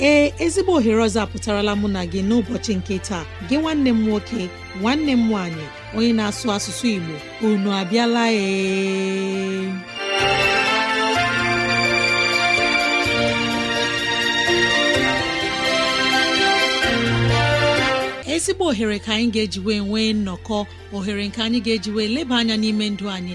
ee ezigbo ohere ọzọ apụtarala mụ na gị n'ụbọchị nke taa gị nwanne m nwoke nwanne m nwanyị, onye na-asụ asụsụ Igbo unu abịala ee ezigbo ohere ka anyị ga-eji wee nwee nnọkọ ohere nke anyị ga ejiwe leba anya n'ime ndụ anyị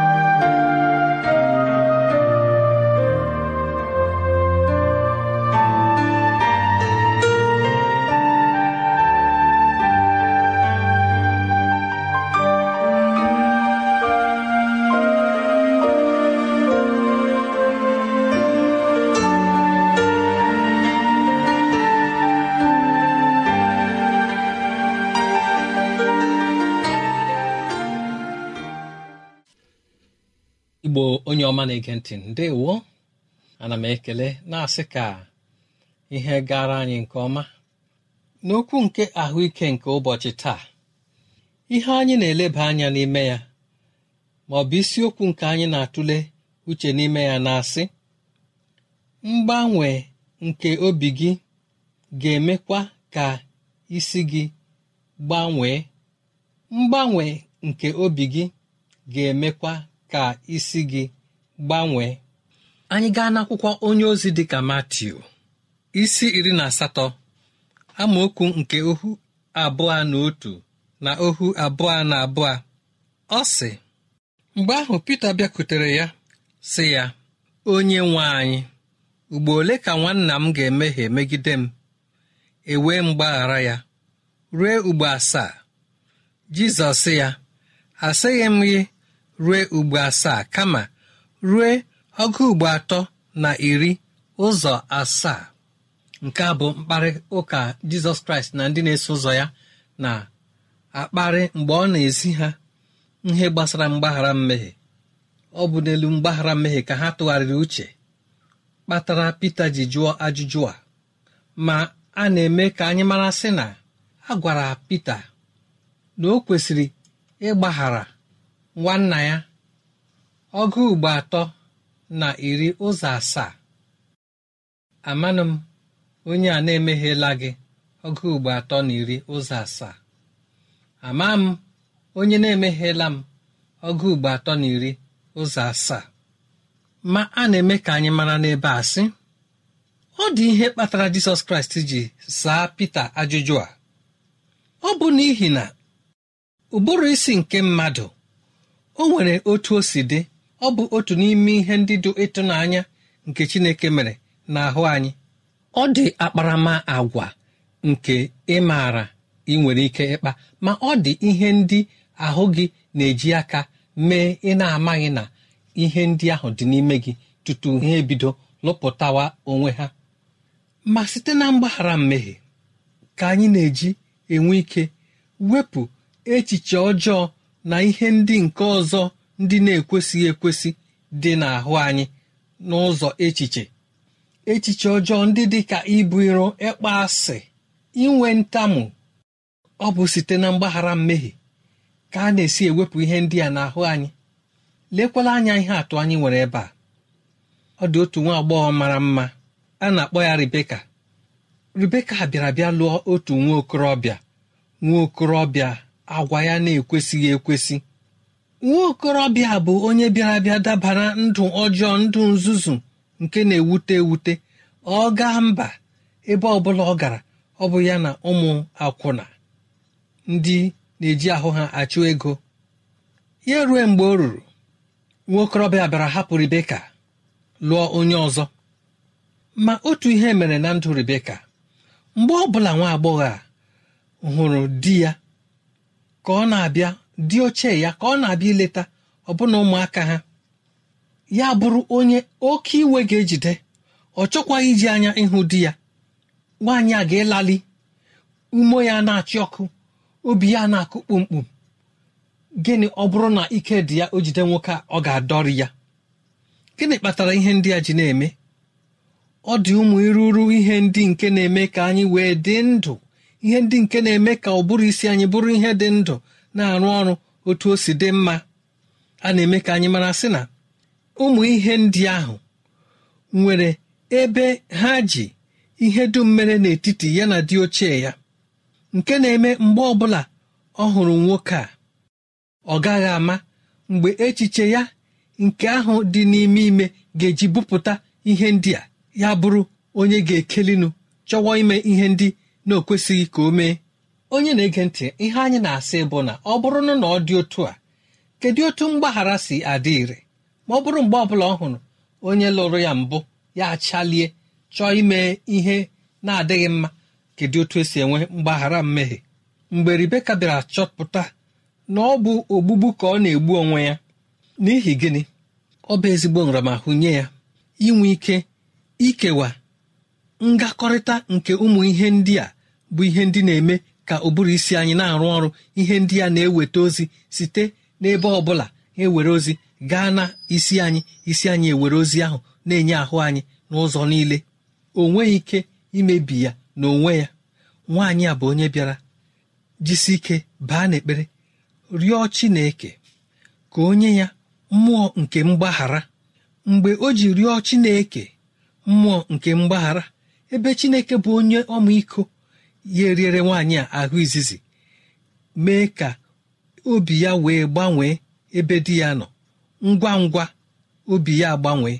ọma na-ege ntị ndewo ana m ekele na-asị ka ihe gara anyị nke ọma n'okwu nke ahụike nke ụbọchị taa ihe anyị na-eleba anya n'ime ya ma ọ bụ isiokwu nke anyị na-atụle uche n'ime ya na-asị mgbanwe nke obi gị ga-emekwa ka isi gị gbanwee mgbanwe nke obi gị ga-emekwa ka isi gị gbanwee anyị gaa n'akwụkwọ onye ozi dị ka Matiu isi iri na asatọ amaokwu nke ohu abụọ na otu na ohu abụọ na abụọ ọ sị mgbe ahụ Pita bịakwutere ya sị ya onye nwe anyị ugbo ole ka nwanna m ga-emehie megide m ewee mgbaghara ya ruo ugbo asaa Jizọs sị ya asịghị m gị ruo ugbo asaa kama ruo ọgụ ugbo atọ na iri ụzọ asaa nke a bụ mkparị ụka jizọs kraịst na ndị na-eso ụzọ ya na akparị mgbe ọ na-ezi ha ihe gbasara mgbaghara mmehie ọ bụ n'elu mgbaghara mmehie ka ha tụgharịrị uche kpatara pita ji jụọ ajụjụ a ma a na-eme ka anyị mara sị na a gwara pita na o kwesịrị ịgbaghara nwanna ya ọgụ ugbo atọ na iri ụzọ asaa amanụ onye a na-emeghela gị ọgụ ugbo atọ na iri ụzọ asaa ama m onye na-emeghela m ọgụ ugbo atọ na iri ụzọ asaa ma a na-eme ka anyị mara n'ebe a sị ọ dị ihe kpatara jisọs kraịst ji saa pita ajụjụ a ọ bụ n'ihi na ụbụrụ isi nke mmadụ o nwere otu o si dị ọ bụ otu n'ime ihe ndị dị ịtụnanya nke chineke mere n'ahụ anyị ọ dị akparama agwa nke ị maara ị nwere ike ịkpa ma ọ dị ihe ndị ahụ gị na-eji aka mee ị na-amaghị na ihe ndị ahụ dị n'ime gị tutu ha ebido lụpụtawa onwe ha ma site na mgbaghara mmehie ka anyị na-eji enwe ike wepụ echiche ọjọọ na ihe ndị nke ọzọ ndị na-ekwesịghị ekwesị dị n'ahụ anyị n'ụzọ echiche echiche ọjọọ ndị dị ka ibu iro ịkpa asị inwe ntamu ọ bụ site na mgbaghara mmehie ka a na-esi ewepụ ihe ndị a n'ahụ anyị lekwala anya ihe atụ anyị nwere ebe a ọ dị otu nwa agbọghọ mara mma a na-akpọ ya Rebeka Rebeka bịara bịa lụọ otu nwa okorobịa nwa okorobịa agwa ya na-ekwesịghị ekwesị nwa okorobịa bụ onye bịara bịa dabara ndụ ọjọọ ndụ nzuzu nke na-ewute ewute ọ gaa mba ebe ọbụla ọ gara ọ bụ ya na ụmụ akwụna ndị na-eji ahụ ha achụ ego ya rue mgbe o ruru nwa bịara hapụ ribeka lụọ onye ọzọ ma otu ihe mere na ndụ ribeka mgbe ọ bụla nwa agbọghọ a hụrụ di ya ka ọ na-abịa dị ochie ya ka ọ na-abịa ileta ọbụna ụmụaka ha ya bụrụ onye oke iwe ga-ejide ọ chọkwaghị iji anya ịhụ di ya nwaanyị a ga-elali ume ya na-achị ọkụ obi ya na-akụ kpụmkpụm gịnị ọ bụrụ na ike dị ya o jide nwoke a ọ ga-adọrị ya gịnị kpatara ihe ndị a ji na-eme ọ dị ụmụ iruru ihe ndị nke na-eme ka anyị wee dị ndụ ihe ndị nke na-eme ka ụbụrụ isi anyị bụrụ ihe dị ndụ na-arụ ọrụ otu o si dị mma a na-eme ka anyị mara sị na ụmụ ihe ndị ahụ nwere ebe ha ji ihe dum mere n'etiti ya na dị ochie ya nke na-eme mgbe ọbụla ọ hụrụ nwoke a ọ gaghị ama mgbe echiche ya nke ahụ dị n'ime ime ga-eji bupụta ihe ndị a ya bụrụ onye ga-ekelinu chọwa ime ihe ndị na ka o mee onye na-ege ntị ihe anyị na-asị bụ na ọ bụrụ na ọ dị otu a kedu otu mgbaghara si adị ire ma ọ bụrụ mgbe ọ bụla ọ hụrụ onye lụrụ ya mbụ ya achalie chọọ ime ihe na-adịghị mma kedu otu esi enwe mgbaghara mmehie mgbe ribeka bịara chọpụta na ọ bụ ogbugbu ka ọ na-egbu onwe ya n'ihi gịnị ọ bụ ezigbo nramahụ nye ya inwe ike ikewa ngakọrịta nke ụmụ ihe ndị a bụ ihe ndị na-eme ka ụbụrụ isi anyị na-arụ ọrụ ihe ndị a na-eweta ozi site n'ebe ọ bụla ewere ozi gaa na isi anyị isi anyị ewere ozi ahụ na-enye ahụ anyị n'ụzọ niile Onwe ike imebi ya na onwe ya nwaanyị a bụ onye bịara jisi ike baa n'ekpere rịọ Chineke ka onye ya mmụọ nke mgbaghara mgbe o ji rịọ Chineke mmụọ nke mgbaghara ebe Chineke bụ onye ọmịiko ya eriere nwaanyị a ahụ izizi mee ka obi ya wee gbanwee ebe di ya nọ ngwa ngwa obi ya gbanwee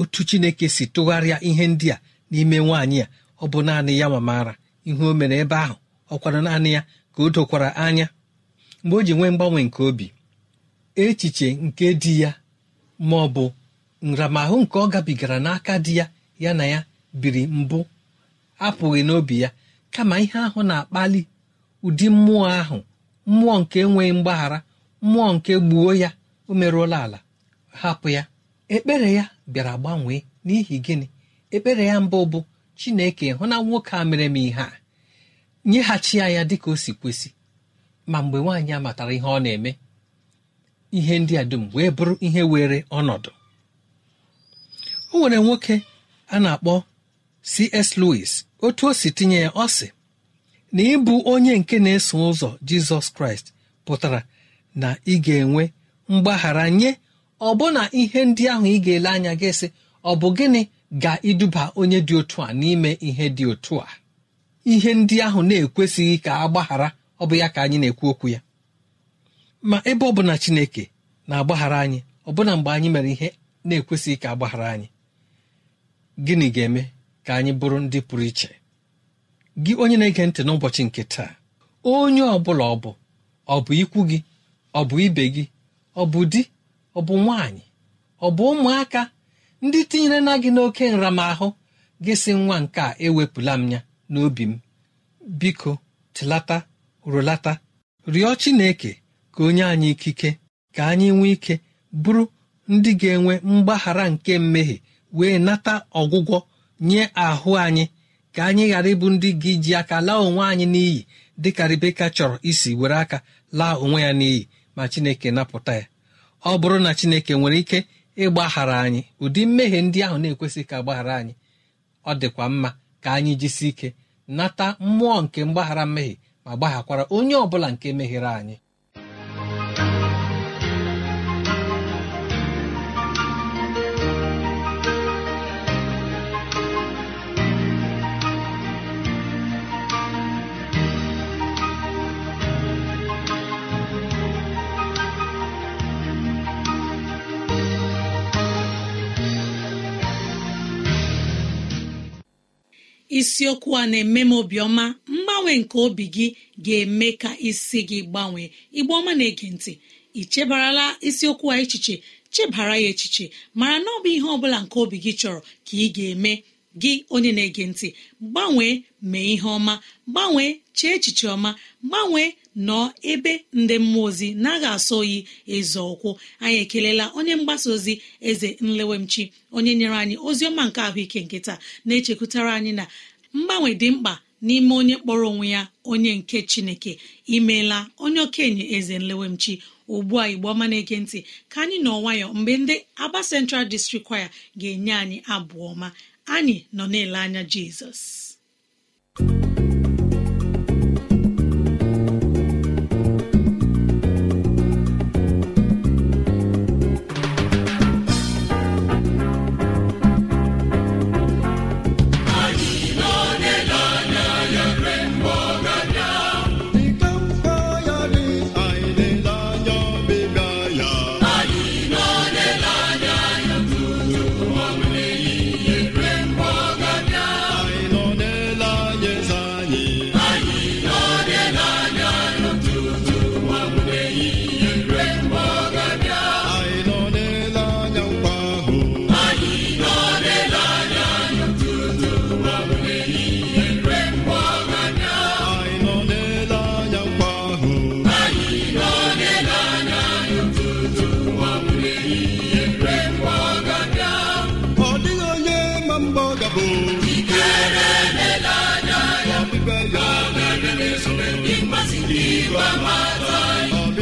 otu chineke si tụgharịa ihe ndị a n'ime nwaanyị a ọ bụ naanị ya ma maara ihe o mere ebe ahụ ọ kwara naanị ya ka o dokwara anya mgbe o ji nwee mgbanwe nke obi echiche nke di ya ma ọ bụ nramahụ nke ọ gabigara n'aka di ya ya na ya biri mbụ apụghị n'obi ya kama ihe ahụ na-akpali ụdị mmụọ ahụ mmụọ nke enweghị mgbaghara mmụọ nke gbuo ya o merụọla ala hapụ ya ekpere ya bịara gbanwee n'ihi gịnị ekpere ya mbụ bụ chineke hụ na nwoke a mere m ihe a nyeghachi ya ya dịka o si kwesị ma mgbe nwaanyị a matara ihe ọ na-eme ihe ndị a dum wee bụrụ ihe were ọnọdụ o nwere nwoke a na-akpọ C.S. Lewis otu o si tinye ya ọ sị na ịbụ onye nke na-eso ụzọ jizọs kraịst pụtara na ị ga-enwe mgbaghara nye ọbụna ihe ndị ahụ ị ga-ele anya gị sị ọ bụ gịnị ga-iduba onye dị otu a n'ime ihe dị otu a ihe ndị ahụ na-ekwesịghị ka a gbaghara ọ bụ ya ka anyị na-ekwu okwu ya ma ebe ọ bụla Chineke na-agbaghara anyị ọbụna mgbe anyị mere ihe na-ekwesịghị ka agbaghara anyị gịnị ga-eme ka anyị bụrụ ndị pụrụ iche gị onye na-ege ntị n'ụbọchị nke taa onye ọ bụla ọ bụ ọ bụ ikwu gị ọ bụ ibe gị ọ bụ di ọ bụ nwaanyị ọ bụ ụmụaka ndị tinyere na gị n'oke nramahụ gị sị nwa nke a ewepụla m ya n'obi m biko tilata rụlata rịọ Chineke ka onye anyị ikike ka anyị nwee ike bụrụ ndị ga-enwe mgbaghara nke mmehie wee nata ọgwụgwọ nye ahụ anyị ka anyị ghara ịbụ ndị gị ji aka laa onwe anyị n'iyi dịka Rebeka chọrọ isi were aka laa onwe ya n'iyi ma Chineke napụta ya ọ bụrụ na Chineke nwere ike ịgbaghara anyị ụdị mmehie ndị ahụ na-ekwesịghị ka gbaghara anyị ọ dịkwa mma ka anyị jisi ike nata mmụọ nke mgbaghara mmehie ma gbaghakwara onye ọ bụla nke mehiere anyị isiokwu a na-eme m obiọma mgbanwe nke obi gị ga-eme ka isi gị gbanwee igbe ọma na-ege ntị ị chebarala isiokwu a echiche chebara ya echiche mara na ọ bụ ihe ọbụla nke obi gị chọrọ ka ị ga-eme gị onye na-ege ntị gbanwee mee ihe ọma gbanwee chee echiche ọma gbanwee nọ ebe ndị mmụọ ozi na-agha asọ oyi eze ụkwụ anyị ekelela onye mgbasa ozi eze nlewemchi onye nyere anyị ozi ọma nke ahụike nkịta na-echekwutara anyị na mgbanwe dị mkpa n'ime onye kpọrọ onwe ya onye nke chineke imeela onye okenye eze nlewemchi ugbu a igbo ọma na-ege ntị ka anyị nọ nwayọ mgbe ndị aba central district kwaya ga-enye anyị abụọ ọma anyị nọ na-ele anya jizọs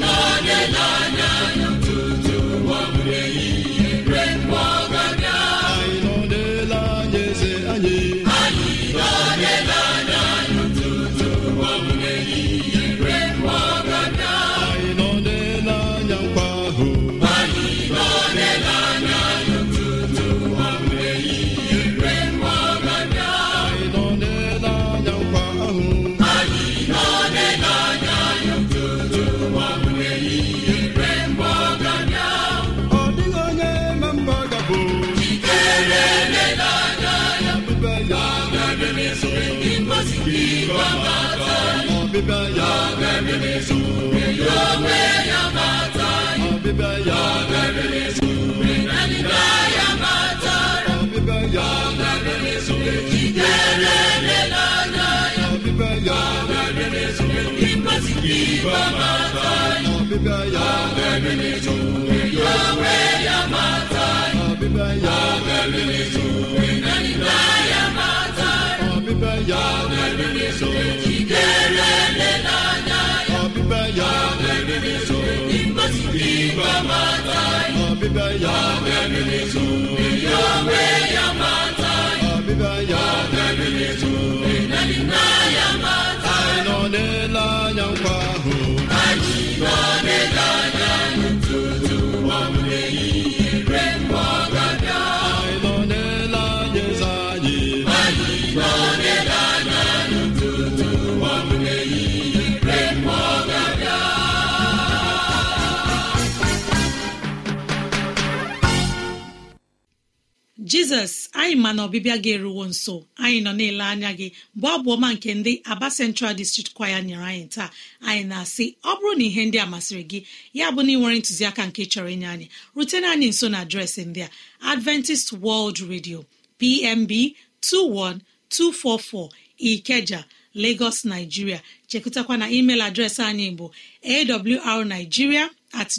n'anya n'anya tutu ụwa bụrụ ihe. Iba matai, ya mere n'ezuwe Yowe ya matai, abịbịa ya mere n'ezuwe ya matai, abịbịa ya mere n'ezuwe na ya, abịbịa ya mere matai, ya Yowe ya matai, ya ya matai ọdịla anya nkwa ahụ anyị nọ n'ele anya tutu ọmụme eyi jizọs anyị ma na ọbịbịa gị eruwo nso anyị nọ na-ele anya gị bụ ọbụọma nke ndị aba central district kwaya nyere anyị taa anyị na-asị ọ bụrụ na ihe ndị a masịrị gị ya bụ na ị nwere ntụziaka nke chọrọ inye anyị rutena anyị nso na adreesị ndị a adventist world radio pmb 21244 ikeja lagos nigeria chekụtakwa na email adreesị anyị bụ awrnigeria at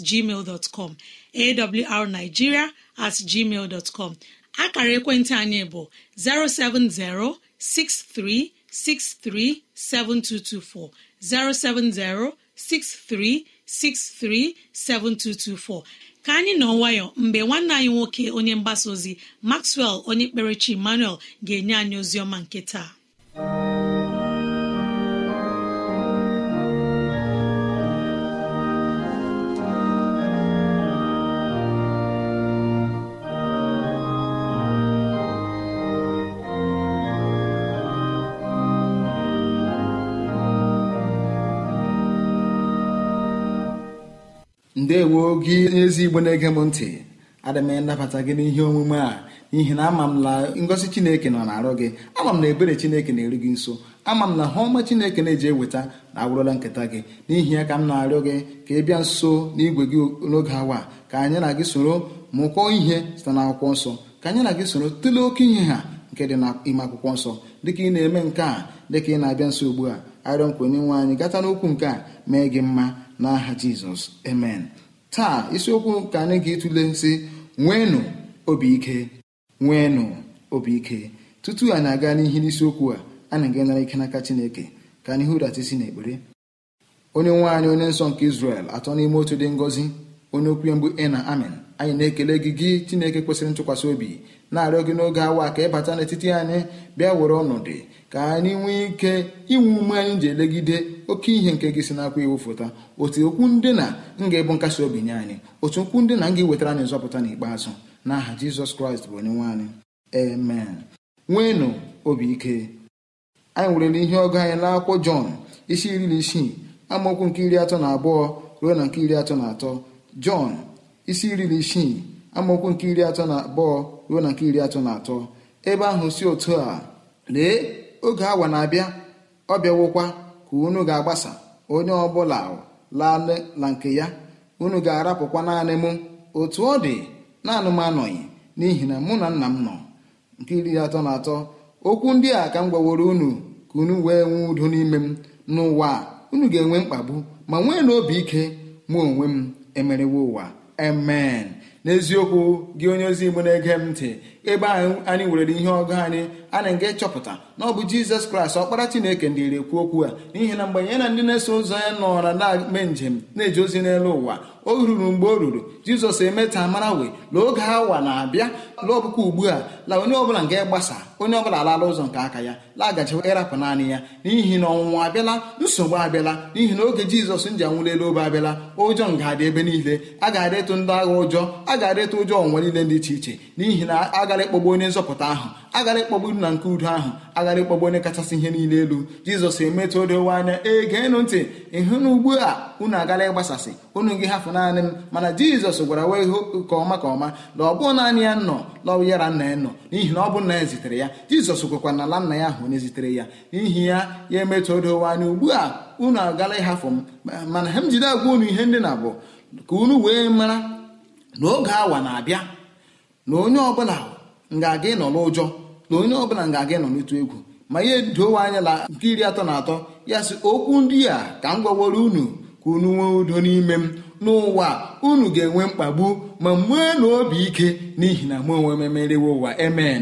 com at gmail dot com akara ekwentị anyị bụ 07063637224 7224 ka anyị nọ nwayọ mgbe nwanne anyị nwoke onye mgbasa ozi Maxwell onye kpere chi Emmanuel ga-enye anyị ozi ọma nke taa ndewo gị n'ezi igbo na-ege m ntị adị m ịnabata gị n'ihe omume a n'ihi na ama m na ngosi chineke nọ na-arụ gị ama m na ebere chineke na-eru gị nso ama m na ha ọma chineke na-eji eweta na agwụrụla nketa gị n'ihi ya ka m na-arịọ gị ka ị bịa nso n'igwe gị n'oge awa ka anyị na gị soro mụkọọ ihe site akwụkwọ nsọ ka anyị na gị soro tụlee oke ihe ha nke dị ime akwụkwọ nsọ dịka ị na-eme nke a dịka ị na-abịa nso ugbu a arịọ nkwenye nwe anyị gata n'okwu nke a mee gị mma n'aha jizọs amen taa isiokwu ka anyị ga etule si nweenụ obi ike nweenụ obi ike tutu anyị aga n'ihi n'isiokwu a anyị ga-enara ike n'aka chineke ka anyị hụrata isi n'ekpere onye nwe anyị onye nsọ nke israel atọ n'ime otu dị ngọzi onye okwu ya mgbe amen anyị na-ekele gị gị chineke kwesịrị ntụkwasị obi na-arịọ gị n'oge awa ka ị bata n'etiti anyị bịa were ọnọdụ ka anyị nwee ike inwe ume anyị ji elegide oke ihe nke gị si n'akwa iwu fụta otu okwu ndị na nga ebu nkasi obi nye anyị otu okwu ndị na nga iwetara anyị nzọpụta n'ikpeazụ n'aha jizọs kraịst bụ onye nwe anyị amen nweenụ obi ike anyị werele ihe ọgụ anyị na n'akwụkwọ jọn isi iri na isii amaokwu nke iri atọ na abụọ ruo na nke iri atọ na atọ jọn isi iri na isii amaokwu nke iri atọ na abụọ ruo na nke iri atọ na atọ ebe ahụ si otu a lee oge awa na-abịa ọ bịawokwa ka unu ga-agbasa onye ọbụla lala nke ya unu ga-arapụkwa naanị mụ otu ọ dị naanị m anọghị n'ihi na mụ na nna m nọ nke iri atọ na atọ okwu ndị a ka m gwaworo unu ka unu wee nwee udo n'ime m n'ụwa unu ga-enwe mkpagbu ma nwee na obi ike mụ onwe m emerewo ụwa amen n'eziokwu gị onye ozi igbo na-ege m ntị ebe anyị nwere ihe ọgụ anyị na nga ịchọpụta na ọ bụ jizọs kraịst ọkpara chineke ndị na-ekwu okwu a n'ihi na mgbe ya na ndị na-eso ụzọ ya nọra na-eme njem na-eje ozi n'elu ụwa o ruru mgbe o ruru jizọs emeta mara wee la oge awa na-abịa la ugbu a la onye ọbụla nga ịgbasa onye ọbụla alala ụzọ nke aka ya lagachiwa ịrapụ naanị ya n'ihi na ọnwụnwa abịala nsogbu abịala n'ihi na oge jizọs nji anwụlelu obe abịala ụjọ nga adị ebe niile a ga-adịtụ ndị agha ụjọ a ga-adịtụ ụjọ ọnwa niile dị iche iche n'ihi na aga agara ịkpọgbu onye nzọpụta ahụ agara ịkpọgbu na nke udo ahụ agara ịkpọgbu onye kachasị ihe niile elu jizọs emetụ odowe anya egeenụ ntị ịhụ na ugbu a unu agara ịgbasasị unu gị hafụ naanị m mana jizọs gwara wee hụ ka ọma ka ọma na ọ bụ naanị ya nọ lọwụ yara nna ya nọ n'ihi na ọ bụ nna ya zitere ya jizọs gwekwa na ala nna ya ahụ onye zitere ya n'ihi ya ya emetụ odowe anya ugbu a unu agara ịhafụ m mana ha m jide agwa unu ihe ndị na ka unu wee mara na oge awa na-abịa na onye ọbụla nga-aga ịnọ n'ụjọ na onye ọbụla nga-aga ịnọ n'otu egwu ma ihe dowe anya na nke iri atọ na atọ ya sị okwu ndị a ka m gwaworo unu ka unu nwee udo n'ime m n'ụwa unu ga-enwe mkpagbu ma nwee na obi ike n'ihi na mụ onwe m emerewe ụwa emen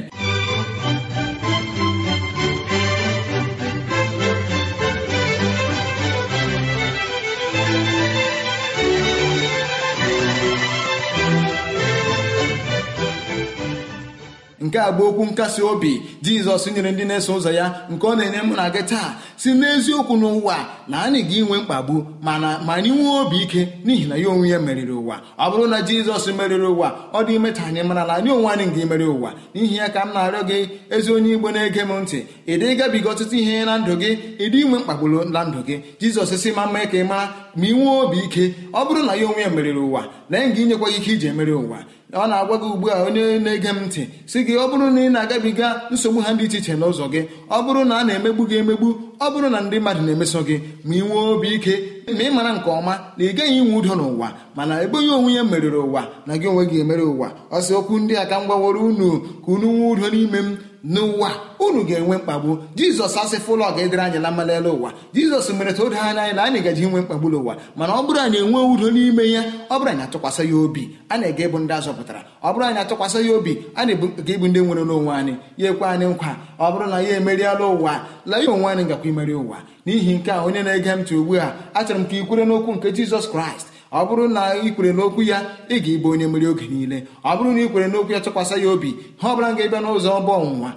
nke a bụ okwu nkasi obi jizọs nyere ndị na-eso ụzọ ya nke ọ na-enye mụ na gị taa si n'eziokwu n'ụwa na anyị ga inwe mkpagbu mana ma anyị nwee obi ike n'ihi na ya onwe ya meriri ụwa ọ bụrụ na jizọs meriri ụwa ọ dị ime ta anyị mara na anyị onwe anyị ga-emeri ụwa n'ihi ya ka m na-arịọ gị ezi onye igbo na-ege m ntị ị dị gabiga ọtụtụ ihe na ndụ gị ịdị inwe mkpagbu na ndụ gị jizọs si ma mma ka ị mara ma ị nwee obi ike ọ bụrụ na ya onwe ya meriri ụwa lee nga inyekwa ike iji emeri ụwa ọ na-agwa gị ugbu a onye na-ege m ntị si gị ọ bụrụ na ị na-agabiga nsogbu ha dị iche iche n'ụzọ gị ọ bụrụ na a na-emegbu gị emegbu ọ bụrụ na ndị mmadụ na-emeso gị ma ị nwee obi ike ma ị mara nke ọma na ị gaghị inwe udo n'ụwa mana ebughị onwe ya meriri ụwa na gị onwe gị emere ụwa ọ sị okwu ndị a ka m gwaworo unu ka unu nwee udo n'ime m n'ụwa unu ga-enwe mkpagbu jizọs asịfụ ụlọ ga-edere anyị na mmalele ụwa jizọs mere ta o anya anyị na anyị gaji inwe mkpagbu n'ụwa mana ọ bụrụ anyị enwe udo n'ime ya ọ bụrụ anyị atụkwasị ya obi a na-ege ịbụ ndị azọpụtara ọ bụrụ anyị atụkwasị ya obi a na-ga ịbụ ndị nwere n'onwe anyị ya ekwe anyị nkwa ọ bụrụ na ya emeriela ụwa la ya onwe anyị gakwa imeri ụwa n'ihi nke a onye na-ege m ntị ugbu a achọrọ m ka ị kwere n'okwu nke jizọs kraịst ọ bụrụ na ị kwere n'okwu ya ị ga-ịbụ onye mmeri oge niile ọ bụrụ na ị kwere n'okwu ya tụkwasị ya obi ha ọ bụla ga-ebịa n'ụzọ ọbụ ọnwụnwa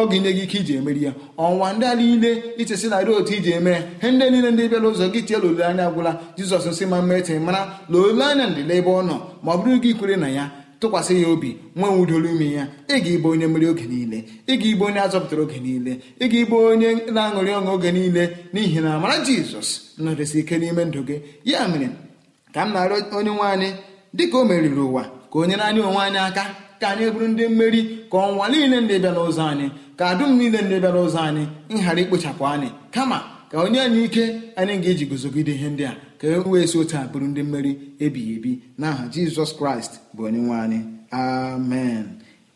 ọ ga-enye gị ike iji emeri ya ọnwa ndị a niile ichesi na otu iji eme ya he ndị niile ndị bịara ụzọ gị tiela anya gwụla jizọs nsị ma mma mmetị mara na anya ndịla ebe ọ nọ ma ọ bụrụ gị kwere na ya tụkwasị ya obi nwe nwudoro ime ya ịga ga-ịbụ onye mmeri oge niile ịga ga-ịbụ onye azọpụtara oge niile ịga ga-ịbụ onye na-aṅụrị ọṅụ oge niile n'ihi na amara jizọs nọdesi ike n'ime ndụ gị ya mere ka m nara onye nwe anyị dị ka o meriri ụwa ka o nyere anyị onwe anyị aka ka anyị bụrụ ndị mmeri ka ọnwa niile ndị bịara ụzọ anyị ka dum niile ndị bịara ụzọ anyị nhara ikpochapụ anyị kama ka onye anyị ike anyị ga-eji guzogide ihe ndị a ka e wee si otu a bụrụ ndị mmeri ebighị ebi n'aha jizọs kraịst bụ onye nwe anyị amen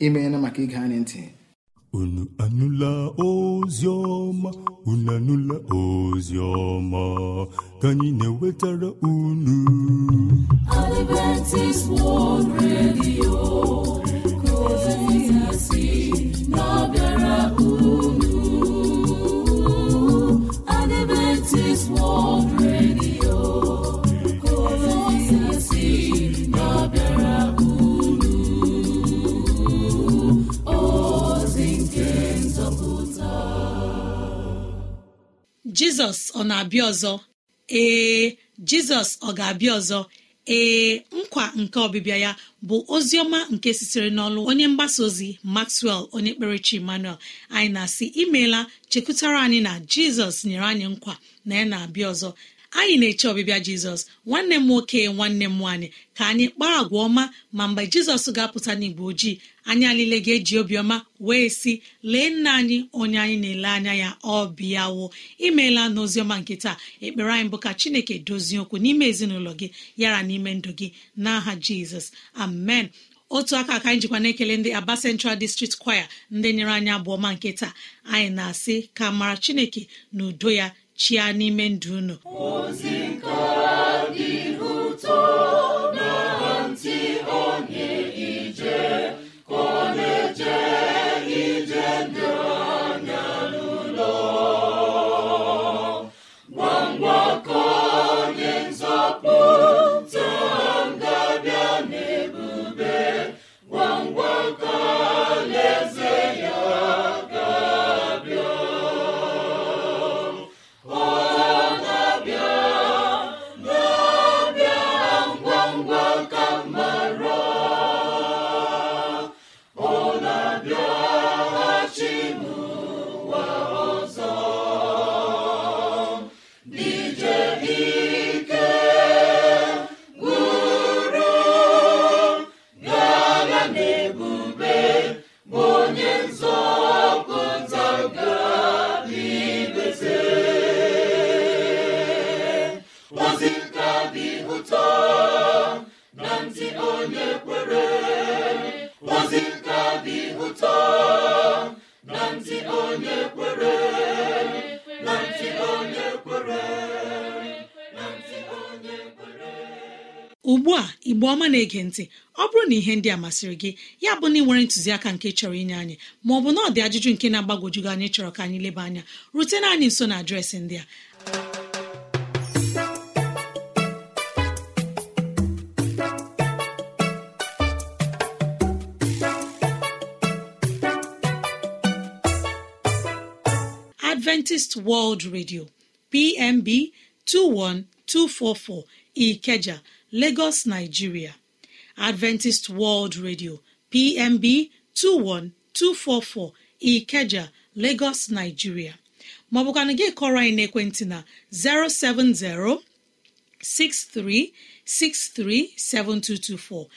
imeela maka ige anyị ntị unu anụla oziọma unu anụla oziọma ka anyị na-ewetara unu Adventist World Radio nke ozi si na-abịara unu Adventist World jizọs ọ na-abịa ọzọ ee jizọs ọ ga-abịa ọzọ ee nkwa nke ọbịbịa ya bụ ozi ọma nke sitere n'ọlụ onye mgbasa ozi maxwell onye kperechi emmanuel anyị na-asị imeela chekwutara anyị na jizọs nyere anyị nkwa na ya na-abịa ọzọ anyị na-eche ọbịbịa jizọs nwanne m nwoke nwanne m nwaanyị ka anyị kpaa agwa ọma ma mgbe jizọs ga-apụta n'igbo ojii anyị alile ga-eji obiọma wee sị lee nna anyị onye anyị na-ele anya ya ọ bịawo imeela n'oziọma nke taa ekpere anyị bụ ka chineke dozie okwu n'ime ezinụlọ gị yara n'ime ndụ gị n'aha jizọs amen otu aka aka anyị jikwa na-ekele ndị aba central district choir ndị nyere anyị abụọ ma nke taa anyị na-asị ka mara chineke na udo ya chịa n'ime ndụ unu ugbu a igbe ọma na-ege ntị ọ bụrụ na ihe ndị a masịrị gị ya bụ na ị nwere ntụziaka nke chọrọ inye anyị ma ọ bụ na ọ dị ajụjụ nke na-agbagwojugo anyị chọrọ ka anyị leba anya rutena anyị nso na adreesị ndị a Adventist World Radio PMB 21244 Ikeja Lagos Nigeria Adventist World Radio PMB 21244 Ikeja Lagos Nigeria maọbụkana gị kọrọ anyị n'ekwentị na 070 7224;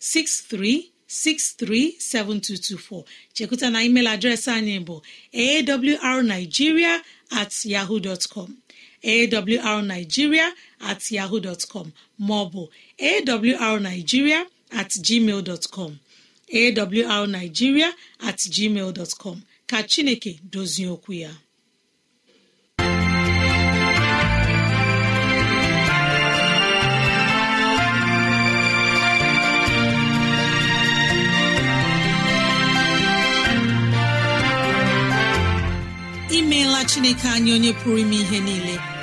070 7224. chekwụta na email adreesị anyị bụ awrnigeria at yahoo dot com arigiria at yaho dtcom maọbụ awrnigiria at gmail dọtcom awrnigiria at gmail dọtcom ka chineke dozie okwu ya imeela chineke anyị onye pụrụ ime ihe niile